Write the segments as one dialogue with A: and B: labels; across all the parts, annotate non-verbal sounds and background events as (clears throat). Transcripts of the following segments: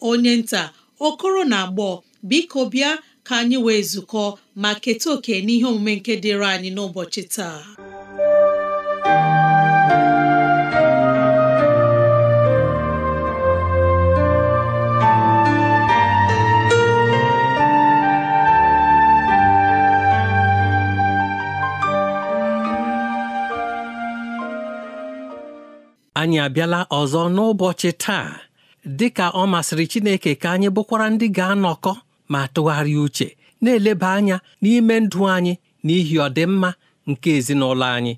A: onye nta okoro na agbọ biko bịa ka anyị wee zukọ ma keta oke n'ihe omume nke dịịrị anyị n'ụbọchị taa
B: anyị abịala ọzọ n'ụbọchị taa dị ka ọ masịrị Chineke ka anyị bụkwara ndị ga-anọkọ ma tụgharịa uche na-eleba anya n'ime ndụ anyị n'ihi ọdịmma nke ezinụlọ anyị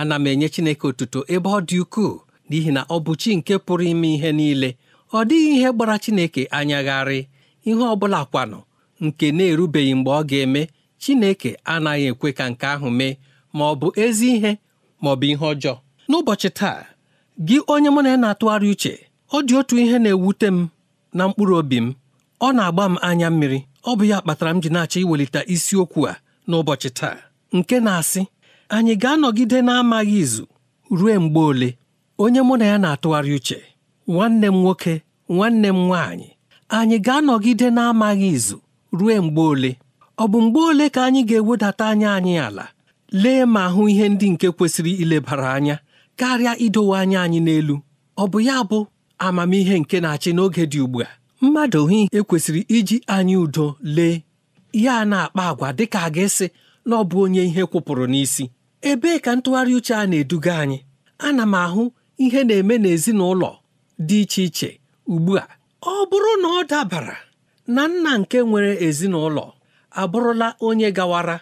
B: ana m enye Chineke otuto ebe ọ dị ukwuu n'ihi na ọ bụ chi nke pụrụ ime ihe niile ọ dịghị ihe gbara Chineke anyagharị ihe ọ bụla kwanụ nke na-erubeghị mgbe ọ ga-eme Chineke anaghị ekwe ka nke ahụ mee ma ọ bụ ezi ihe ma ọ bụ ihe ọjọọ n'ụbọchị taa gị onye mụ na ya na-atụgharị uche ọ dị otu ihe na-ewute m na mkpụrụ obi m ọ na-agba m anya mmiri ọ bụ ya kpatara m ji na-achọ iwelite isiokwu a n'ụbọchị taa nke na-asị anyị ga-anọgide na-amaghị izu ruo mgbe ole onye mụ na ya na-atụgharị uche nwanne m nwoke nwanne m nwaanyị anyị ga-anọgide na-amaghị izu ruo mgbe ole ọ bụ mgbe ole ka anyị ga-ewedata anya anyị ala lee ma hụ ihe ndị nke kwesịrị ilebara anya karịa idowe anya anyị n'elu ọ bụ ya bụ amamihe nke na-achị n'oge dị ugbu a mmadụ hi ekwesịrị iji anyị udo lee ya na-akpa agwa dịka a ga-esi na ọ bụ onye ihe kwụpụrụ n'isi ebee ka ntụgharị uche a na-eduga anyị ana m ahụ ihe na-eme n'ezinụlọ dị iche iche ugbu a ọ bụrụ na ọ dabara na nna nke nwere ezinụlọ abụrụla onye gawara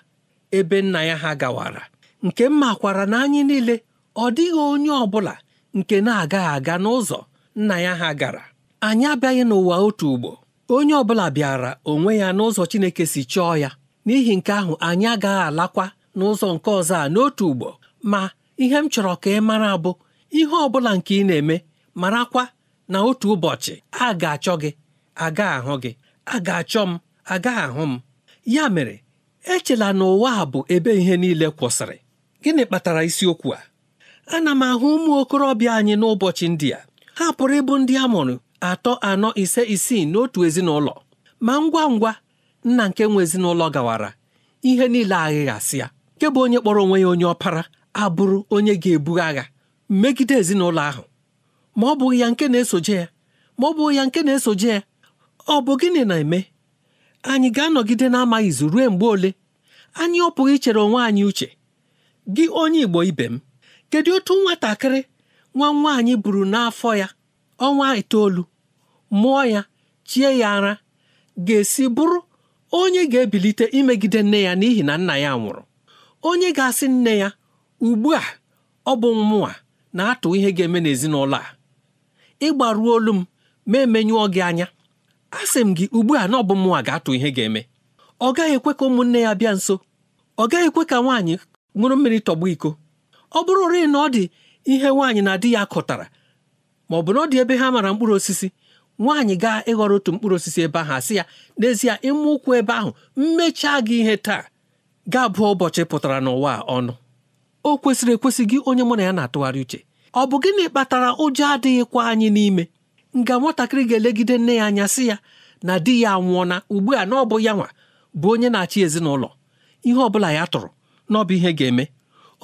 B: ebe nna ya ha gawara nke m makwara na anyị niile ọ dịghị onye ọ bụla nke na-agaghị aga n'ụzọ nna ya ha gara anyị abịaghị n'ụwa otu ugbo onye ọbụla bịara onwe ya n'ụzọ Chineke si chọọ ya n'ihi nke ahụ anyị agaghị alakwa n'ụzọ nke ọzọ a n'otu ugbo ma ihe m chọrọ ka ị mara bụ ihe ọ bụla nke ị na-eme marakwa na otu ụbọchị a ga-achọ gị aga ahụ gị a ga-achọ m aga ahụ m ya mere echela na ụwa a bụ ebe ihe niile kwụsịrị gịnị kpatara isiokwu a ana m ahụ ụmụ okorobịa anyị n'ụbọchị ndị a ha pụrụ ịbụ ndị a mụrụ atọ anọ ise isii n'otu ezinụlọ ma ngwa ngwa nna nke nwe ezinụlọ gawara ihe niile aghịghasị ya nke bụ onye kpọrọ onwe ya onye ọpara abụrụ onye ga-ebu agha megide ezinụlọ ahụ ma ọ bụghị ya nke na-esoje ya ma ọ bụghị ya nke na-esoje ya ọ bụ gịnị na-eme anyị ga-anọgide na-amaghị izu ruo mgbe ole anyị ọ pụghị ichere onwe anyị uche gị onye Igbo ibe m kedu otu nwatakịrị nwa nwaanyị buru n'afọ ya ọnwa itoolu mụọ ya chie ya ara ga-esi bụrụ onye ga-ebilite imegide nne ya n'ihi na nna ya nwụrụ onye ga-asị nne ya ugbu a ọ bụ mmụọ na-atụ ihe ga-eme n'ezinụlọ a ịgbaruo olu m ma emenyụọ gị anya asị m gị ugbu a na ọ bụ mmụọ ga-atụ ihe ga-eme ọ gaghị ekwe ka ụmụnne ya bịa nso ọ gaghị ekwe ka nwaanyị ṅụrụ mmiri tọgbọ iko ọ bụrụ bụrụrị na ọ dị ihe nwaanyị na di ya kụtara ma ọ bụ na ọ dị ebe ha mara mkpụrụ osisi nwaanyị gaa ịghọrọ otu mkpụrụ osisi ebe ahụ asị ya n'ezie ịma ụkwụ ebe ahụ mmechaa gị ihe taa ga bụọ ụbọchị pụtara n'ụwa ọnụ o kwesịrị ekwesị gị onye mụ na ya na-atụgharị uche ọ bụ gịnị kpatara ụjọ adịghịkwa anyị n'ime nga nwatakịrị ga-elegide nne ya anya sị ya na di ya anwụọna ugbu a na ọ bụ ya nwa bụ onye na-achị ezinụlọ ihe ọ bụla ya tụrụ na ọ bụ ihe ga-eme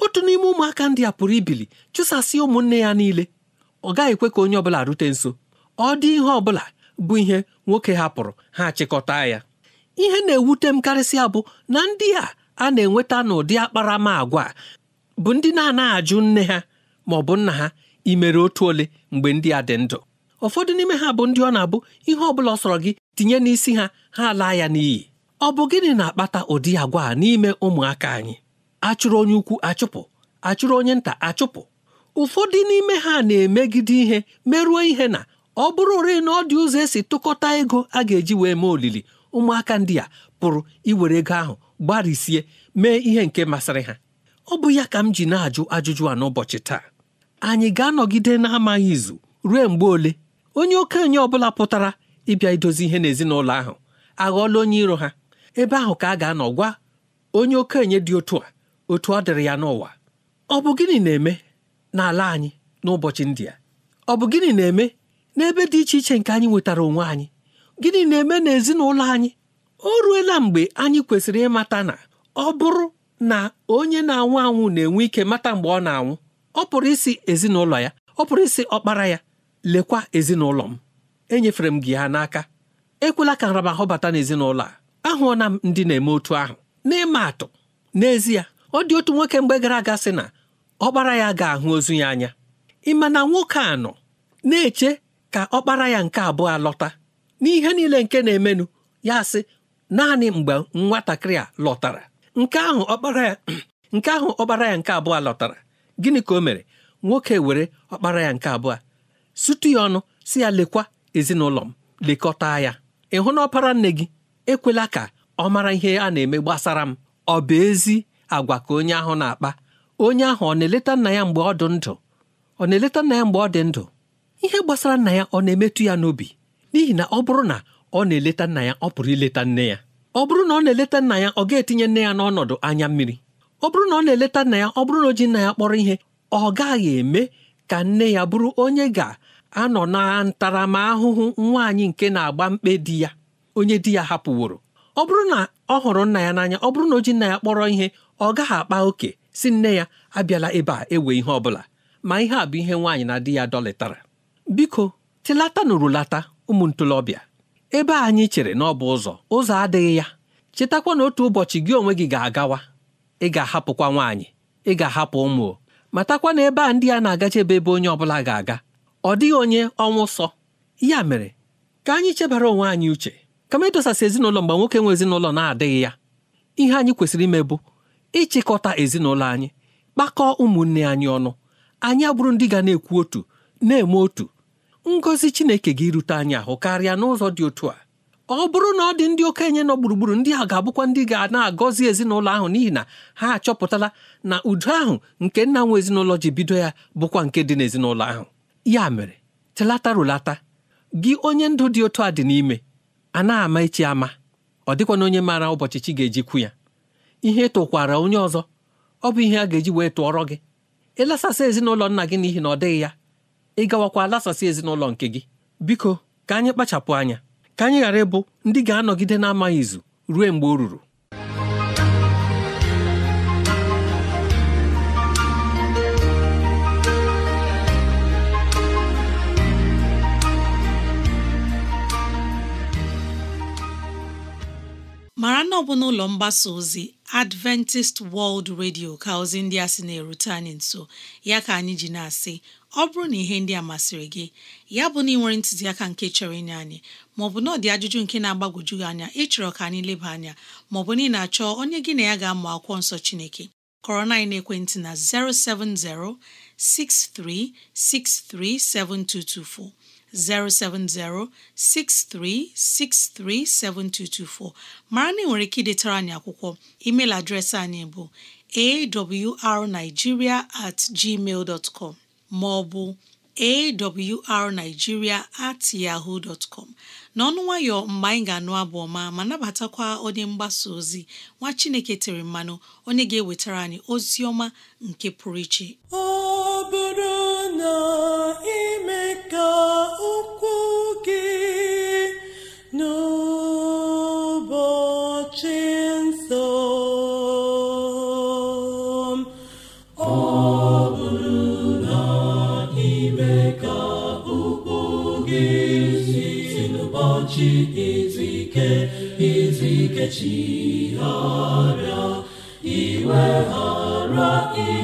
B: otu n'ime ụmụaka ndị a pụrụ ibili chụsasị ụmụnne ya niile ọ gaghị ekwe ka onye ọbụla rute nso ọ dị ihe ọbụla bụ ihe nwoke hapụrụ ha chịkọta ya ihe na-ewute m karịsịa bụ na ndị a a na-enweta n'ụdị akparamagwa bụ ndị na-anaghị ajụ nne ha ma ọ bụ nna ha imere otu ole mgbe ndị a dị ndụ ụfọdụ n'ime ha bụ ndị ọ na-abụ ihe ọbụla ọ sọrọ gị tinye n'isi ha ha laa ya n'iyi ọ bụ gịnị na-akpata ụdị agwa a n'ime ụmụaka anyị achụrụ onye ukwu achụpụ achụrụ onye nta achụpụ ụfọdụ n'ime ha na-emegide ihe merụọ ihe na ọ bụrụ ore na ọ dị ụzọ esi tụkọta ego a ga-eji wee mee olili ụmụaka ndị a pụrụ iwere ego ahụ gbarisie mee ihe nke masịrị ha ọ bụ ya ka m ji na-ajụ ajụjụ a n'ụbọchị taa anyị ga-anọgide na-amaghị izu ruo mgbe ole onye okenye ọbụla pụtara ịbịa idozi ihe n'ezinụlọ ahụ aghọọla onye iro ha ebe ahụ ka a ga-anọ gwa onye okenye dị otu a otu ọ dịrị ya n'ụwa ọ bụ gịnị na-eme n'ala anyị n'ụbọchị ndị a ọ bụ gịnị na-eme n'ebe dị iche iche nke anyị nwetara onwe anyị gịnị na-eme n'ezinụlọ anyị o ruela mgbe anyị kwesịrị ịmata na ọ bụrụ na onye na-anwụ anwụ na-enwe ike mata mgbe ọ na-anwụ ọ pụrụ isi ezinụlọ ya ọ pụrụ isi ọkpara ya lekwa ezinụlọ m enyefere m gị ha n'aka ekwela ka nramahụ bata n'ezinụlọ a ahụọna m ndị na-eme otu ahụ n'ịma atụ n'ezie ọ dị otu nwoke mgbe gara aga sị na ọkpara ya ga-ahụ ozu ya anya ịma na nwoke a nọ na-eche ka ọkpara ya nke abụọ alọta n'ihe niile nke na-emenụ ya sị naanị mgbe nwatakịrị a lọtara nke ahụ ọkpara ya (clears throat) nke ahụ ọkpara ya nke abụọ lọtara gịnị ka o mere nwoke were ọkpara ya nke abụọ sutu ya ọnụ si ya lekwa ezinụlọ m lekọta ya ịhụ na ọpara nne gị ekwela ka ọ mara ihe a na-eme gbasara m ọ bụ ezi agwa ka onye ahụ na-akpa onye ahụ ọ na-eleta nna ya mgbe ọ dị ndụ ọ na-eleta nna ya mgbe ọ dị ndụ ihe gbasara nna ya ọ na-emetụ ya n'obi n'ihi na ọ bụrụ na ọ na-eleta nna ya ọ pụrụ ileta nne ya ọ bụrụ na ọ na-eleta nna ya ọ ga-etinye nne ya n'ọnọdụ anya mmiri ọ bụrụ na ọ na-eleta nna ya ọ bụrụ na o ji nna ya kpọrọ ihe ọ gaghị eme ka nne ya bụrụ onye ga-anọ na ntaramahụhụ nwaanyị nke na-agba mkpe di ya onye di ya hapụworo ọ bụrụ na ọ hụrụ nna ya n'anya ọ bụrụ na o ji nna ya kpọrọ ihe ọ gaghị akpa oke si nne ya abịala ebe a ewe ihe ọ bụla ma ihe a bụ ihe nwaanyị na di ya dọlịtara biko tilata nụrụlata ụmụ ntolobịa ebe anyị chere na ọ bụ ụzọ ụzọ adịghị ya chetakwa na otu ụbọchị gị onwe gị ga-agawa ị ga-ahapụkwa nwaanyị ị ga-ahapụ ụmụ matakwa na ebe a ndị a na-agachebe ebe onye ọbụla ga-aga ọ dịghị onye ọnwụ sọ ya mere ka anyị chebara onwe anyị uche kama ịdọsasị ezinụlọ mgbe nwoke nwe ezinụlọ na-adịghị ya ihe anyị kwesịrị ime bụ ịchịkọta ezinụlọ anyị kpakọọ ụmụnne anyị ọnụ anyị abụrụ ndị ga na-ekwu otu na-eme otu ngọzi Chineke gị rute anyị ahụ karịa n'ụzọ dị otu a ọ bụrụ na ọ dị ndị okenye nọ gburugburu ndị a ga-abụkwa ndị ga na-agọzi ezinụlọ ahụ n'ihi na ha achọpụtala na udo ahụ nke nna nwe ezinụlọ ji bido ya bụkwa nke dị n'ezinụlọ ahụ ya mere telata rụlata gị onye ndụ dị otu a dị n'ime a na-ama echi ama ọ dịkwana onye maara ụbọchị chi ga-ejikwu ya ihe tụkwara onye ọzọ ọ bụ ihe a ga-eji wee tụọrọ gị ịlasasị ezinụlọ nna gị n'ihi na ọ dịghị ya ị gawakwa lasasị ezinụlọ nke gị biko ka anyị kpachapụ anya ka anyị ghara ịbụ ndị ga-anọgide na izu ruo mgbe o ruru
A: mara na ọ bụ n'ụlọ mgbasa ozi Adventist World Radio ka ozi ndị a sị na-erute anyị nso ya ka anyị ji na-asị ọ bụrụ na ihe ndị a masịrị gị ya bụ na ị nwere ntụziaka nke chọrọ inye anyị maọbụ na ọ dị ajụjụ nke na agbagoju gị anya ịchọrọ ka anyị leba anya maọbụ na ị na-achọ onye gị na ya ga-amụ akwụkwọ nsọ Chineke kọrọ na ekwentị na 070 6363 7224 070 7224 mara na ị nwere ike idetara anyị akwụkwọ email adreesị anyị bụ awrnigeria at gmail com ma ọ bụ at yahoo dot n'ọnụ nwayọ mgbe anyị ga-anụ abụ ọma ma nabatakwa onye mgbasa ozi nwa Chineke tere mmanụ onye ga-ewetara anyị ozi ọma nke pụrụ iche
C: ọ bụrụ na ime ka ụkwụ gị n'ụbọchị nsọ ọ bụrụ na ime ka ụkwụ gị n'ụbọchị izu ike izu ike ghara iwe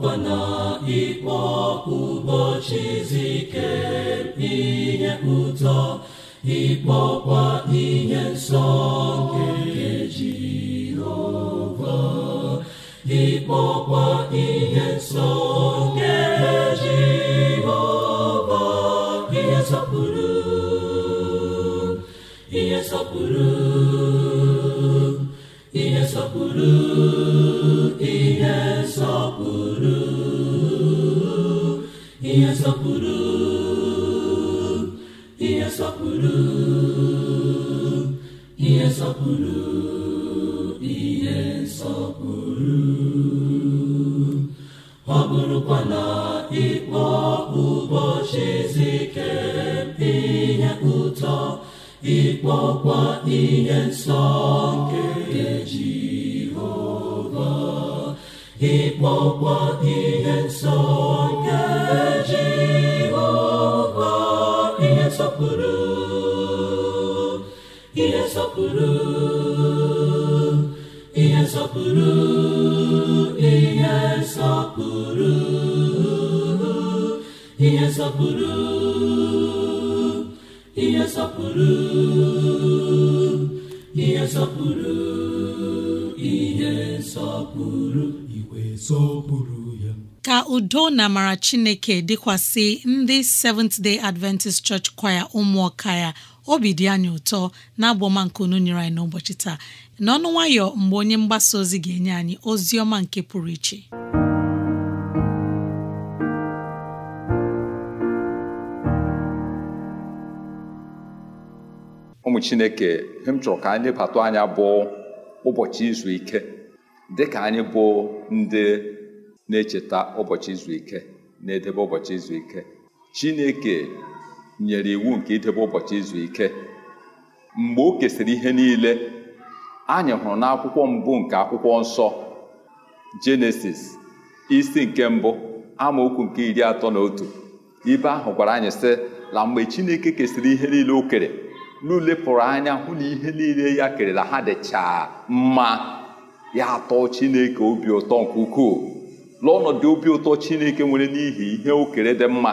C: bụkwa na ịkpọ ụbọchị izu ike ihe ụtọ ịkpọkwa ihe nsọ nke Jehova ịkpọkwa ihe nsọ nke Jehova ihe nsọpụrụ ihe nsọpụrụ ihe nsọpụrụ ihe nsọpụrụ ihe nsọpụrụ
A: ka udo na amara chineke dịkwasị ndị Seventh Day Adventist Church kwaya ụmụọka ya obi dị anyị ụtọ na unu nyere anyị n'ụbọchị taa n'ọnụ nwayọ mgbe onye mgbasa ozi ga-enye anyị ozi ọma nke pụrụ iche
D: ụmụ chineke ihe m chọrọ ka anyị lebata anya bụ ụbọchị izu ike dịka anyị bụ ndị na-echeta ụbọchị izu ike na-edebe ụbọchị izu ike Chineke nyere iwu nke idebe ụbọchị izu ike mgbe o kesịrị ihe niile anyị hụrụ n'akwụkwọ mbụ nke akwụkwọ nsọ Jenesis isi nke mbụ amaokwu nke iri atọ na otu ibe ahụ gwara anyị sị na mgbe Chineke kesịrị ihe niile o kere n'ulepụrụ anya hụ na ihe niile ya kerela ha dịcha mma ya atọ chineke obi ụtọ nke ukwuu lụọ obi ụtọ chineke nwere n'ihi ihe okere dị mma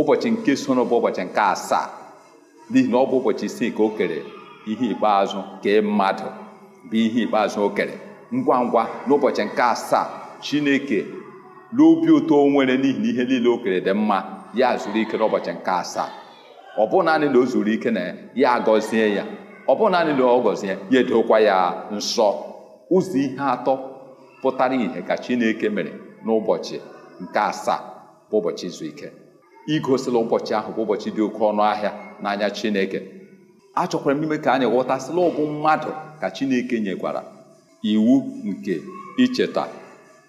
D: ụbọchị nke sono bụ ụbọchị nke asaa n'ihi na ọ bụ ụbọchị isii ka o kere ihe ikpeazụ kee mmadụ bụ ihe ikpeazụ o kere ngwa ngwa n'ụbọchị nke asaa chineke n'obi ụtọ nwere n'ihi na ihe niile o kere dị mma ya zuru ike n'ụbọchị nke asaa ọ bụghị naanị na o zuru ike na ya agọzie ya ọ bụghị naanị na ọ gọzie ya edokwa ya nsọ ụzọ ihe atọ pụtara ìhè ka Chineke mere n'ụbọchị nke asaa bụ ụbọchị izu ike igosila ụbọchị ahụ bụ ụbọchị dị oke ọnụ ahịa n'anya Chineke achọkwara m ime ka anyị ghọtasịla ọbụ mmadụ ka Chineke nyekwara iwu nke icheta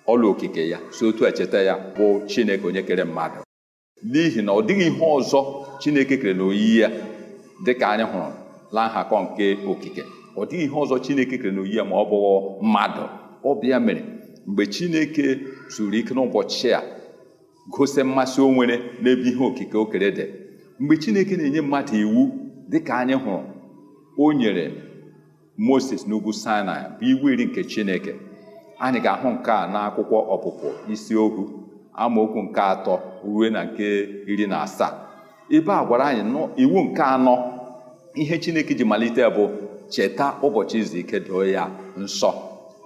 D: ọla okike ya si otu echeta ya bụ Chineke onye kere mmadụ n'ihi na ọ dịghị ihe ọzọ Chineke kere n'oyiyi ya dịka anyị hụrụ la nhakọ nke okike ọ dịghị ihe ọzọ Chineke kere n'oyiyi ya ma ọ bụghị mmadụ ọbịa mere mgbe Chineke zuru ike n'ụbọchị a gosi mmasị o nwere n'ebe ihe okike o kere dị mgbe Chineke na-enye mmadụ iwu dịka anyị hụrụ o nyere Moses n'ugwu Sinai bụ iwu iri nke Chineke anyị ga-ahụ nke a n'akwụkwọ ọpụpụ isi amaokwu nke atọ ruo na nke iri na asaa ebe a gwara anyị iwu nke anọ ihe chineke ji malite bụ cheta ụbọchị izu ike doo ya nsọ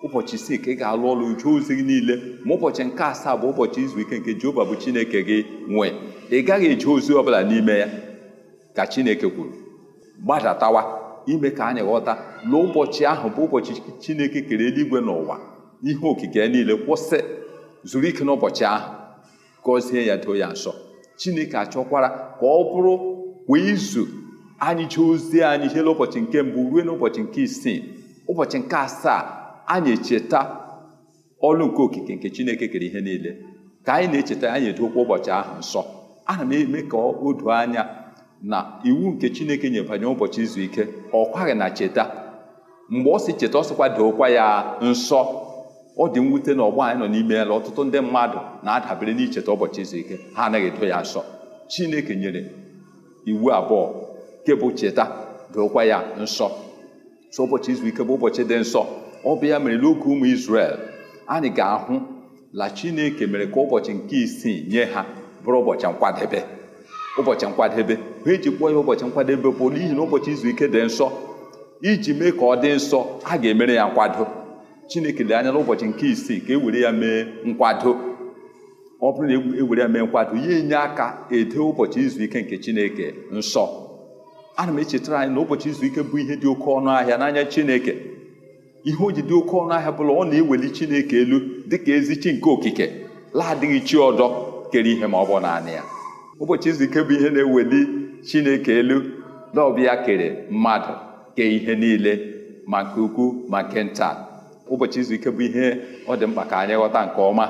D: ụbọchị isii ka ị ga-alụ ọrụ jụọ ozi gị niile ma ụbọchị nke asaa bụ ụbọchị izu ike nke Jehova bụ Chineke gị nwee ị gaghị eji ozi bụla n'ime ya ka Chineke kwuru gbadatawa ime ka anyị ghọta na ụbọchị ahụ bụ ụbọchị Chineke kere eluigwe n'ụwa ihe okike niile kwụsị zuru ike n'ụbọchị ahụ gọzie ya doo ya nsọ chineke achọkwara ka ọ bụrụ kwa izu anyị jee ozi anyị jee ụbọchị nke mbụ ruo n'ụbọchị nke isii ụbọchị nke asaa anyị echeta ọlụ nke okike nke chineke kere ihe niile ka anyị na-echeta anyị edokwa ụbọchị ahụ nsọ ana m eme ka o doo anya na iwu nke chineke nyere banyere ụbọchị izu ike ọ kwaghị na cheta mgbe ọ si cheta ọ sịkwa ya nsọ ọ dị mwute na ọgbọ anyị nọ n'ime ya na ọtụtụ ndị mmadụ na-adabere n'icheta ụbọchị izu ike ha anaghị edo ya nsọ chineke nyere iwu abụọ nke bụ cheta dokwa ya nsọ so ụbọchị izu ike bụ ụbọchị dị nsọ ọ bụ ya mere n'oge ụmụ Izrel anyị ga-ahụ la chineke mere ka ụbọchị nke isii nye ha bụrụ ụbọchị nkwadebe ụbọchị nkwadebe ha eji kpọọ ya ụbọchị nkwadebe bụ n'ihi na ụbọchị izu ike dị nsọ iji mee ka ọ dị nsọ a ga-emere ya nkwado chineke lee anya n'ụbọchị nke isii ka e were ya mee nkwado ọ bụrụ na ewere e ya mee nkwado ya enye aka ede ụbọchị izu ike nke chineke nsọ ana m echetara anyị na ụbọchị izu ike bụ ihe dị oke ọnụ ahịa n'anya chineke ihe o ji dị oke ọnụ ahịa bụla ọ na-eweli chineke elu dịka ezi chi nke okike laadịghị chi ọdọ kere ihe ma ọ bụ naanị ya ụbọchị izu ike bụ ihe na-eweli chineke elu na ọbịa kere mmadụ kee ihe niile ma nke ukwu ma nke nta ụbọchị izu ike bụ ihe ọ dị mkpa ka anyị ghọta nke ọma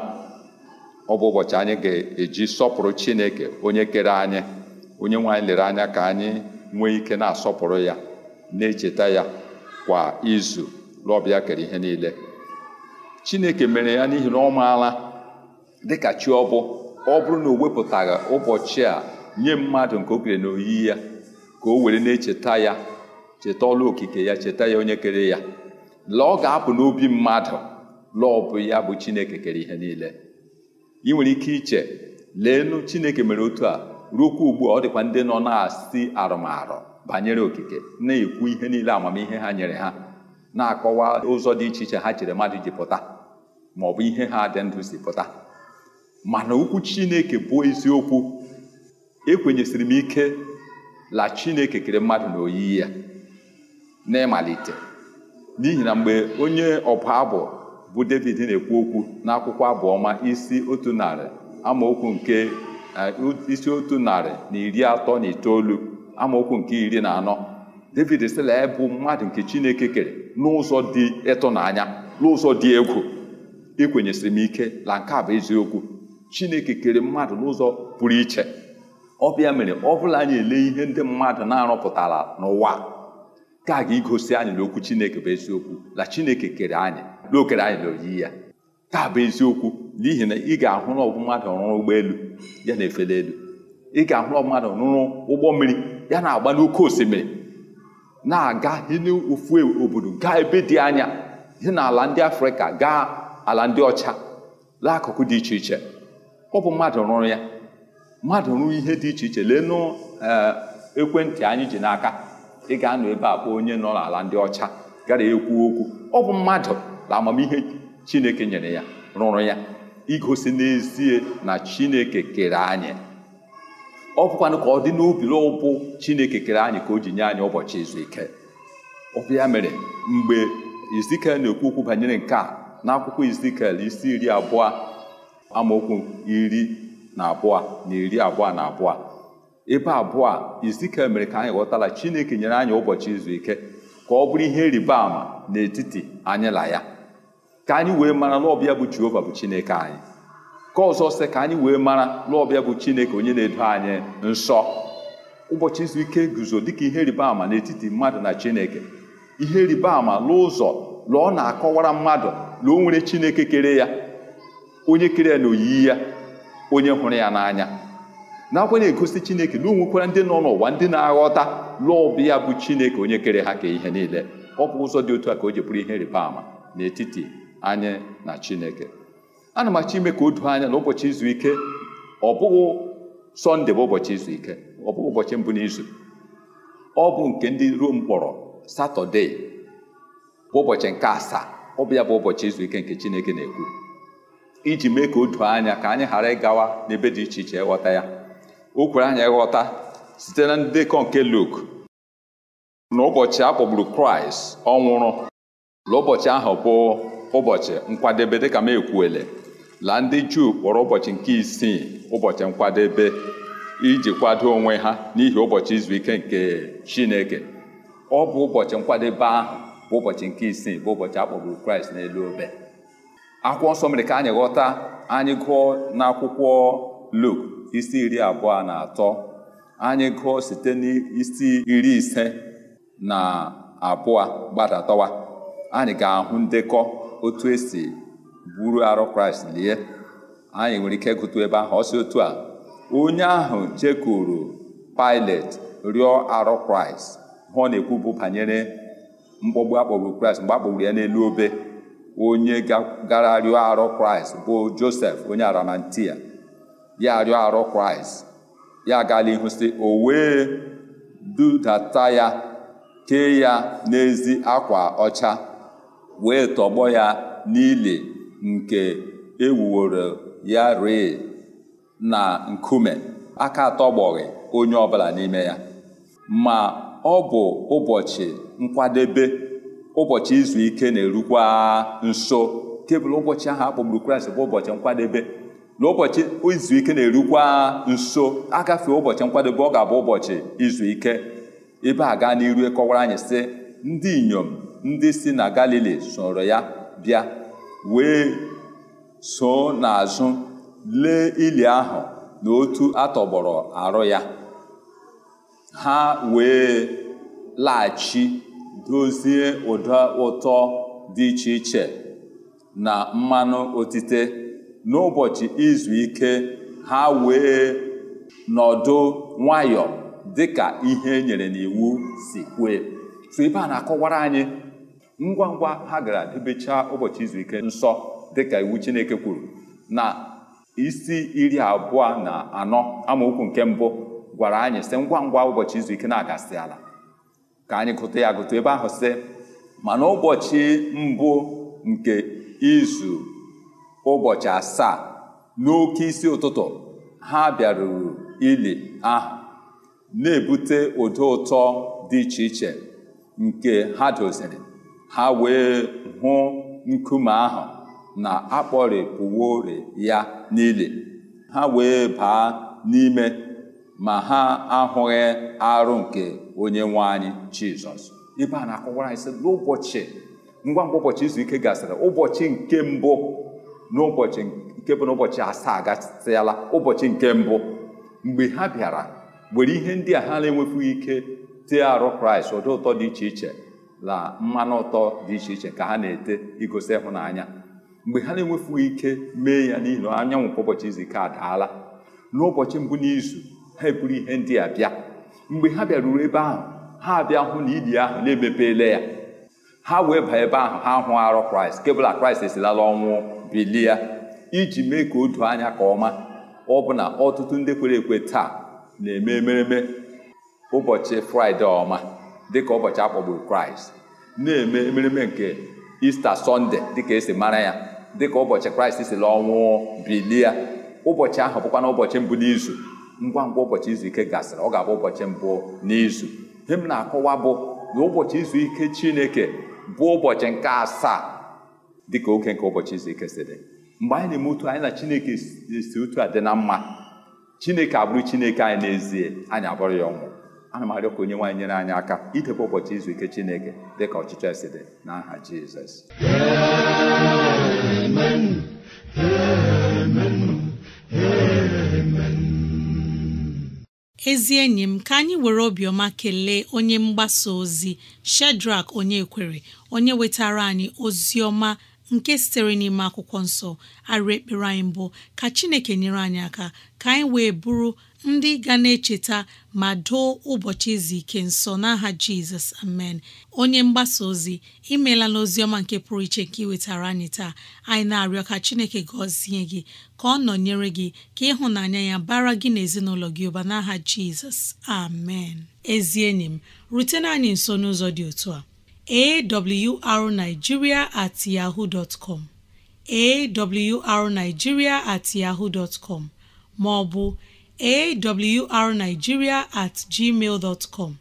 D: ọ bụ ụbọchị anyị ga-eji sọpụrụ Chineke onye kere anyị onye nwe anyị lere anya ka anyị nwee ike na-asọpụrụ ya na-echeta ya kwa izu lọbịa kere ihe niile Chineke mere ya n'ihi na ọ maala dịka chi ọ ọ bụrụ na o wepụtaghị ụbọchị a nye mmadụ nke okere na n'oyiyi ya ka o were na-echeta ya cheta ọlụ okike ya cheta ya onye kere ya la ọ ga-apụ n'obi mmadụ la ọ bụ ya bụ chineke kere ihe niile ị nwere ike iche leenu chineke mere otu a ruokwa ugbu a ọ dịkwa ndị nọ na-asị arụmarụ banyere okike na-ekwu ihe niile amamihe ha nyere ha na-akọwa ụzọ dị iche iche ha chere mmadụ ji pụta ma ọ bụ ihe ha dị ndụ si pụta mana okwu chineke bụ eziokwu ekwenyesịrị m ike la chineke kere mmadụ na oyiyi ya n'ịmalite n'ihi na mgbe onye ọbụ abụ bụ david na-ekwu okwu n'akwụkwọ abụ ọma isi otu narị amaokwu nke e, isi otu narị na iri atọ na itoolu amaokwu nke iri na anọ david sịla bụ mmadụ nke chineke kere n'ụzọ dị ịtụnanya n'ụzọ dị egwu ikwenyesịrị m ike na nke a bụ eziokwu chineke kere mmadụ n'ụzọ pụrụ iche ọ bịa mere ọ bụla anyị ele ihe ndị mmadụ na-arụpụtara n'ụwa nke a ga-egosi anyị na okwu Chineke bụ eziokwu na Chineke kere anyị na anyị n'oyiyi ya nke a bụ eziokwu n'ihi na ị ga-ahụ na ọbụ mmadụ rụrụ ụgbọelu ya na-efeli elu ị ga-ahụ na mmadụ rụrụ ụgbọ mmiri ya na-agba n'oké osimiri na-aga n'ofu e, obodo gaa ebe dị anya ihe na ala ndị Afrịka gaa ala ndị ọcha laakụkụ dị iche iche ọ bụ mmadụ rụrụ ya mmadụ rụrụ ihe dị iche iche lee eh, ekwentị anyị ji n'aka ị ga-anọ ebe a kpọọ onye nọ n'ala ndị ọcha gara ekwu okwu ọ bụ mmadụ na amamihe chineke nyere ya rụrụ ya igosi n'ezie na chineke kere anyị ọ bụkwanụ ka ọ dị n'obi ụbụ chineke kere anyị ka o ji nye anyị ụbọchị izu ike ọ mere mgbe izikel na-ekwu okwu banyere nke a n'akwụkwọ izikel isi iri abụọ amaokwu iri na abụọ na iri abụọ na abụọ ebe abụọ a izika mere ka anyị ghọtala chineke nyere anyị ụbọchị izu ike ka ọ bụrụ ihe ịrịba ama n'etiti anyị na ya ka anyị wee mara n'ọbịa bụ jehova bụ chineke anyị ka ọzọ sị ka anyị wee mara n'ọbịa bụ chineke onye na-edo anyị nsọ ụbọchị izu ike guzo dịka ihe ịrịba ama n'etiti mmadụ na chineke ihe ịrịba ama n'ụzọ na ọ na-akọwara mmadụ na o nwere chineke kere ya onye kere ya na oyiyi ya onye hụrụ ya n'anya nakwa na-egosi chineke na onwekwara ndị nọ n'ụwa ndị na-aghọta lụọ ọbịa bụ chineke onye kere ha ka ihe niile ọ bụ ụzọ dị otu a ka o ji bụrụ ihe rịba ama n'etiti anyị na chineke ana m achọ ime ka o doo anya na ụbọchị izu ike ọ bụghị sọnde bụ ụbọchị izu ike ọ bụghị ụbọchị mbụ n'izu ọ bụ nke ndị ruo mkpọrọ satọde bụ ụbọchị nke asaa ọ bụ ya bụ ụbọchị izu ike nke chineke na-ekwu iji mee ka o doo anya ka anyị ghara ịgawa n'ebe dị iche iche ịghọta ya o kwere anyị ghọta site na ndekọ nke Luk na ụbọchị a kpọgburu kraịst ọ nwụrụ na ụbọchị ahụ bụ ụbọchị nkwadebe dịka m ekwuele la ndị juu kpọrọ ụbọchị nke isii ụbọchị nkwadebe iji kwado onwe ha n'ihi ụbọchị izu ike nke chineke ọ bụ ụbọchị nkwadebe ahụ bụ ụbọchị nke isii bụ ụbọchị a kpọgburu kraịst n'elu obe akwụkwọ nsọ mere ka anyị ghọta anyị gụọ n'akwụkwọ Luk isi iri abụọ na atọ anyị gụọ site n'isi iri ise na abụọ gbadatọwa anyị ga-ahụ ndekọ otu esi buru arụ kraịst lie anyị nwere ike gụtu ebe ahụ ọsị otu a onye ahụ jekwuru pailet rịọ arụ kraịst hụ na-ekwu bụ banyere mkpọgbu akpọgbu kraịst mgbe akpọgburu ya n'elu obe onye gara rịọ arụ kraịst bụ josef onye aramantia. ya arịọ arọ kraịst ya agala ihu si o wee dudata ya kee ya n'ezi akwa ọcha wee tọgbọ ya n'ili nke ewuworo ya ree na nkume aka atọgbọghị onye ọbụla n'ime ya ma ọ bụ ụbọchị nkwadebe ụbọchị izu ike na-erukwa nso kebụl ụbọchị ahụ akpọgburu kraịst bụ ụbọchị nkwadebe n'ụbọchị izu ike na-erukwa nso agafe ụbọchị nkwadebe ọ ga-abụ ụbọchị izu ike ebe a gaa n'iru e kọwara anyị sị ndị inyom ndị si na galili soro ya bịa wee so n'azụ lee ili ahụ na otu atọgbọrọ arụ ya ha wee laghachi dozie ụda ụtọ dị iche iche na mmanụ otite n'ụbọchị izu ike ha wee nọdụ nwayọ dịka ihe na n'iwu si kwe so ebe a na-akọwara anyị ngwa ngwa ha gara debecha ụbọchị izu ike nsọ dịka iwu Chineke kwuru na isi iri abụọ na anọ amaokwu nke mbụ gwara anyị sị ngwa ngwa ụbọchị izu ike na-agasị ala ka anyị gụta ya gụta ebe ahụ sị mana ụbọchị mbụ nke izu ụbọchị asaa n'oke isi ụtụtụ ha bịaruru ili ahụ na-ebute ụdị ụtọ dị iche iche nke ha doziri ha wee hụ nkume ahụ na-akpọrịpụworị ya n'ili ha wee baa n'ime ma ha ahụghị arụ nke onye nwe anyị jizọs ibe a na-akọwara anyị sị n'ụbọchị ngwa ngwa ụbọchị izu ike gasịrị ụbọchị nke mbụ n'ụbọchị nke bụ n'ụbọchị asaa agasịala, ụbọchị nke mbụ mgbe ha bịara were ihe ndị a ha na-enwefughị ike tee arụ kraịst ụdị ụtọ dị iche iche na mmanụ ụtọ dị iche iche ka ha na-ete igosi ịhụnanya mgbe ha na-enwefughị ike mee ya n'ihi na anyanwụ kwa ụbọchị izu ike adaala n'ụbọchị mbụ n'izu ha eburu ihe ndị a bịa mgbe ha bịaruru ebe ahụ ha bịa hụ na ili ahụ na-emepeela ya ha wee baa ebe ahụ ha hụ arụ kraịst kebụla kraịst esilala ọnwụ bilie ya iji mee ka o doo anya ka ọma ọ bụ na ọtụtụ ndị kwere ekwe taa na-eme emereme ụbọchị fraịde ọma dịka ụbọchị akpọgburu kraịst na-eme emereme nke ista sọnde dịka esi mara ya dịka ụbọchị kraịst si la ọnwụọ ụbọchị ahụ bụkwa na ụbọchị mbụ n'izu ngwa ngwa ụbọchị izu ike gasịrị ọ ga-abụ ụbọchị mbụ n'izu ihe m na-akọwa bụ na ụbọchị izu ike chineke bụ ụbọchị nke asaa dị ka oke nke ụbọchị izu si dị mgbe anyị na-eme otu anyị na chineke si otu a dị na mma chineke abụrụ chineke anyị n'ezie anyị abụrụ ya ọnwụ ana m arịọ ka onye nwaanyị nyere anyị aka idebe ụbọchị izu ike chineke dị ka ọchịchọ esi dị n'aha jizọs
A: ezi enyi m ka anyị were obiọma kelee onye mgbasa ozi shedrak onye kwere onye wetara anyị ozi ọma nke sitere n'ime akwụkwọ nsọ arịrị ekpere anyị mbụ ka chineke nyere anyị aka ka anyị wee bụrụ ndị ga na-echeta ma doo ụbọchị izu ike nsọ n'aha jizọs amen onye mgbasa ozi imeela n'ozi ọma nke pụrụ iche nke iwetara anyị taa anyị na-arịọ ka chineke gọzie gị ka ọ nọnyere gị ka ịhụnanya ya bara gị na gị ụba n'aha jizọs amen ezi enyi m rutena anyị nso n'ụzọ dị otu a awrnigeria at yahoo dot com awrnigeria at yahoo dot com maọbụ awrnigeria at gmail dot com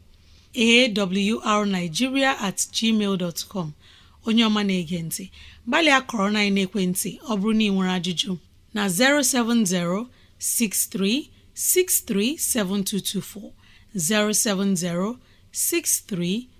A: awrnigeria at gmail dot com onye ọma na-ege ntị gbalịa kọrọ na ekwentị ọ bụrụ na ị nwere ajụjụ na 63 07063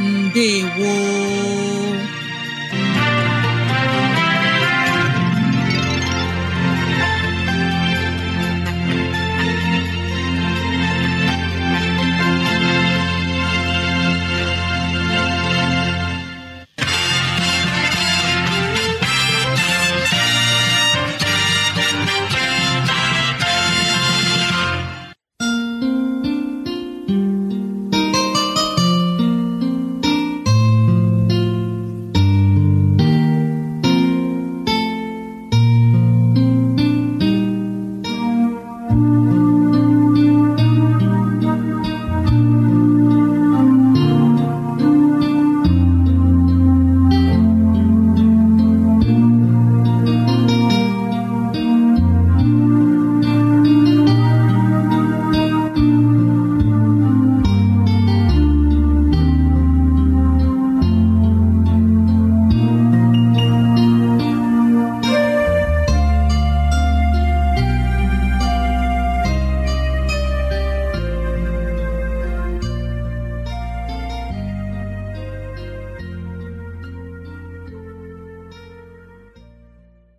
A: ndewo